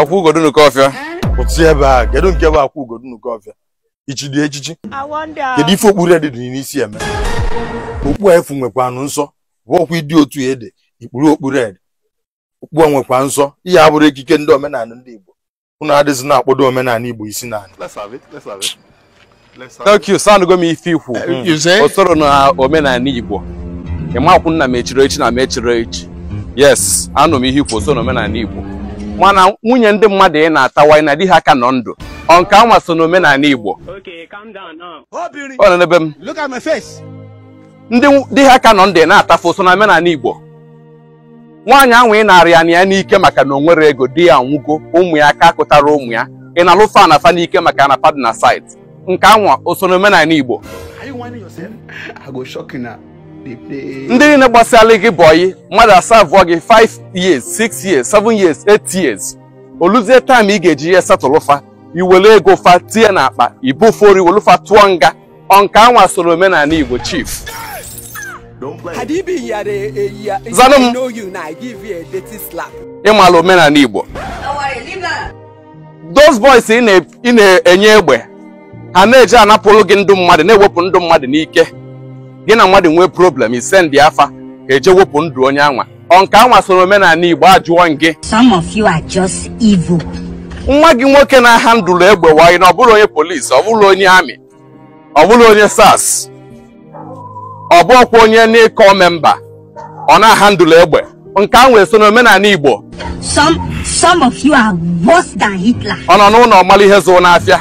akwụ nke ọfịa pụtụ ebe a kedu nke bụ akwụ ugodo n'Ukọfịa ichidi echichi kedu ife okpuru ede dị n'isi eme okpu efu nwekwanụ nsọ bụ ọkwa ịdị otu ede ikpuru okpuru ede okpu nwekwa nsọ ihe abụrụ ekike ndị omenala ndị Igbo ụnụ adịzi na-akpọdo omenala Igbo isi naanị thank you m ife ikwu eh, hmm. o na omenala Igbo ịmakwụ nna m echi na m echi yes anụ m ihe ikwu o so na omenala Igbo mana nwunye ndị mmadụ ị na-atawa na di ha ka nọ ndụ ọ nke anwa so n'omenala Igbo um. ndị di ha ka nọ ndụ ị na-atafu so na omenala Igbo nwaanyị ahụ ị na-arị ya na ya n'ike maka na onwere ego di ya nwugo ụmụ ya ka akụtara ụmụ ya ị na-alụ fa na fa n'ike maka na padna site nke anwa o so n'omenala Igbo ndị niile gbasara gị bọyị mmadụ asaa vụọ gị 5 years 6 years 7 years 8 years oluzie taịm ị ga-eji ihe satụlụfa iwere ego fa tie na akpa ibufori iwelufa tụọ nga ọnka anwa soro omenala igbo chief m ịmala omenala igbo those boys ị na-enye egbe ha na-eji anapụrụ gị ndụ mmadụ na-ewepụ ndụ mmadụ n'ike gị na mmadụ nwee problem ndị afa eje wepụ ndụ onye anwa ọ nke anwa soro omenala Igbo ajụọ gị some of you are just evil. nwa gị nwoke na-aha ndụlụ egbe wanyị na ọ bụrụ onye polisi ọ bụrụ onye amị ọ bụrụ onye sars ọ bụ ọkwa onye n'ịkọ memba ọ na-aha ndụlụ egbe nke ahụ eso na omenala Igbo ọ nọ n'ụlọ ọmala ihe zoo n'afịa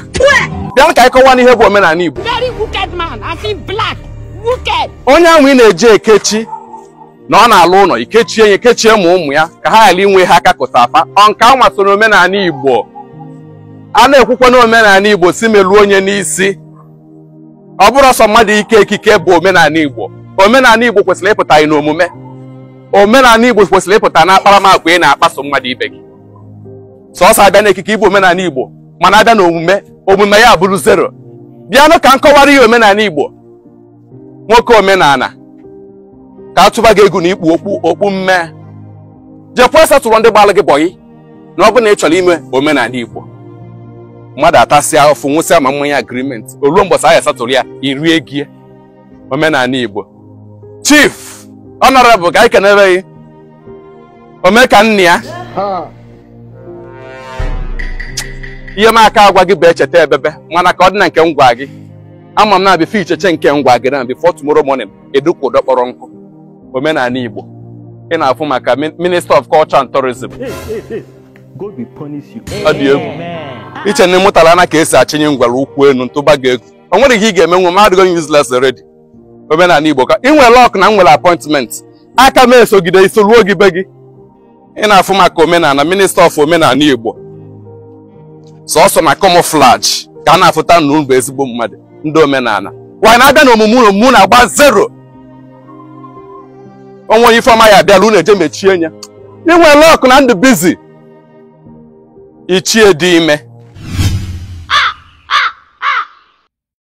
bịa ka anyị kọwa n'ihe bụ omenala Igbo onye ahụ ị na eji ekechi na ọ na-alụ ụlọ ikechie ya ekechie ma ụmụ ya ka ha ghara inwe ha akakụta apa ọ nke anwa so n'omenala Igbo a na-ekwukwa n'omenala Igbo si meluo onye n'isi ọ bụrụ ọsọ mmadụ ike ekike bụ omenala Igbo omenala Igbo kwesịrị ịpụta ị n'omume omenala Igbo kwesịrị ịpụta na akparamagwa ị na-akpaso mmadụ ibe gị Sọọsọ abịa n'ekike ịbụ omenala Igbo mana abịa n'omume omume ya bụrụ zero bịanụ ka m kọwara ihe omenala Igbo nwoke omenala ka a tụba gị egwu na ikpu okpu okpu mme jekwa satụrụ ndị gbalụ gị bọyị na ọ bụ na ị chọrọ ime omenala Igbo mmadụ atasịa ofu nwụsịa ma mmanya agrimenti oluo mgbọsị aya satụrụ ya irie gie omenala Igbo chief honorable ka anyị kenere gị omeka nna ya ihe m aka agwa gị bụ echeta ebebe mana ka ọ dị na nke m gwa gị ama m na-abịa icheche nke ngwa gị na before tomorrow morning edukwu ụdọ kpọrọ nkụ omenala Igbo ị na-afụ maka minister of culture and tourism ọ dị egwu iche na ịmụtala ana ka esi achịnye ngwara ụkwụ elu ntụba gị egwu o nwere ihe ị ga-eme nwe mahadgo useless already omenala Igbo ka ị nwere lọk na m nwere appointment aka m esogide ruo gị be gị ị na-afụ maka omenala minister of omenala Igbo sọsọ na camouflage ka a na-afụta na unu ezigbo mmadụ ndị omenala wanyị na-abịa na omume unu mụ na-agba zero onwe onye ifeọma ya abịala ụlọ eje mechie ị inwe lok na ndụ bizi ichie dị ime